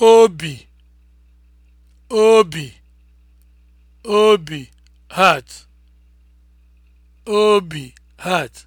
obi obi obi heart obi heart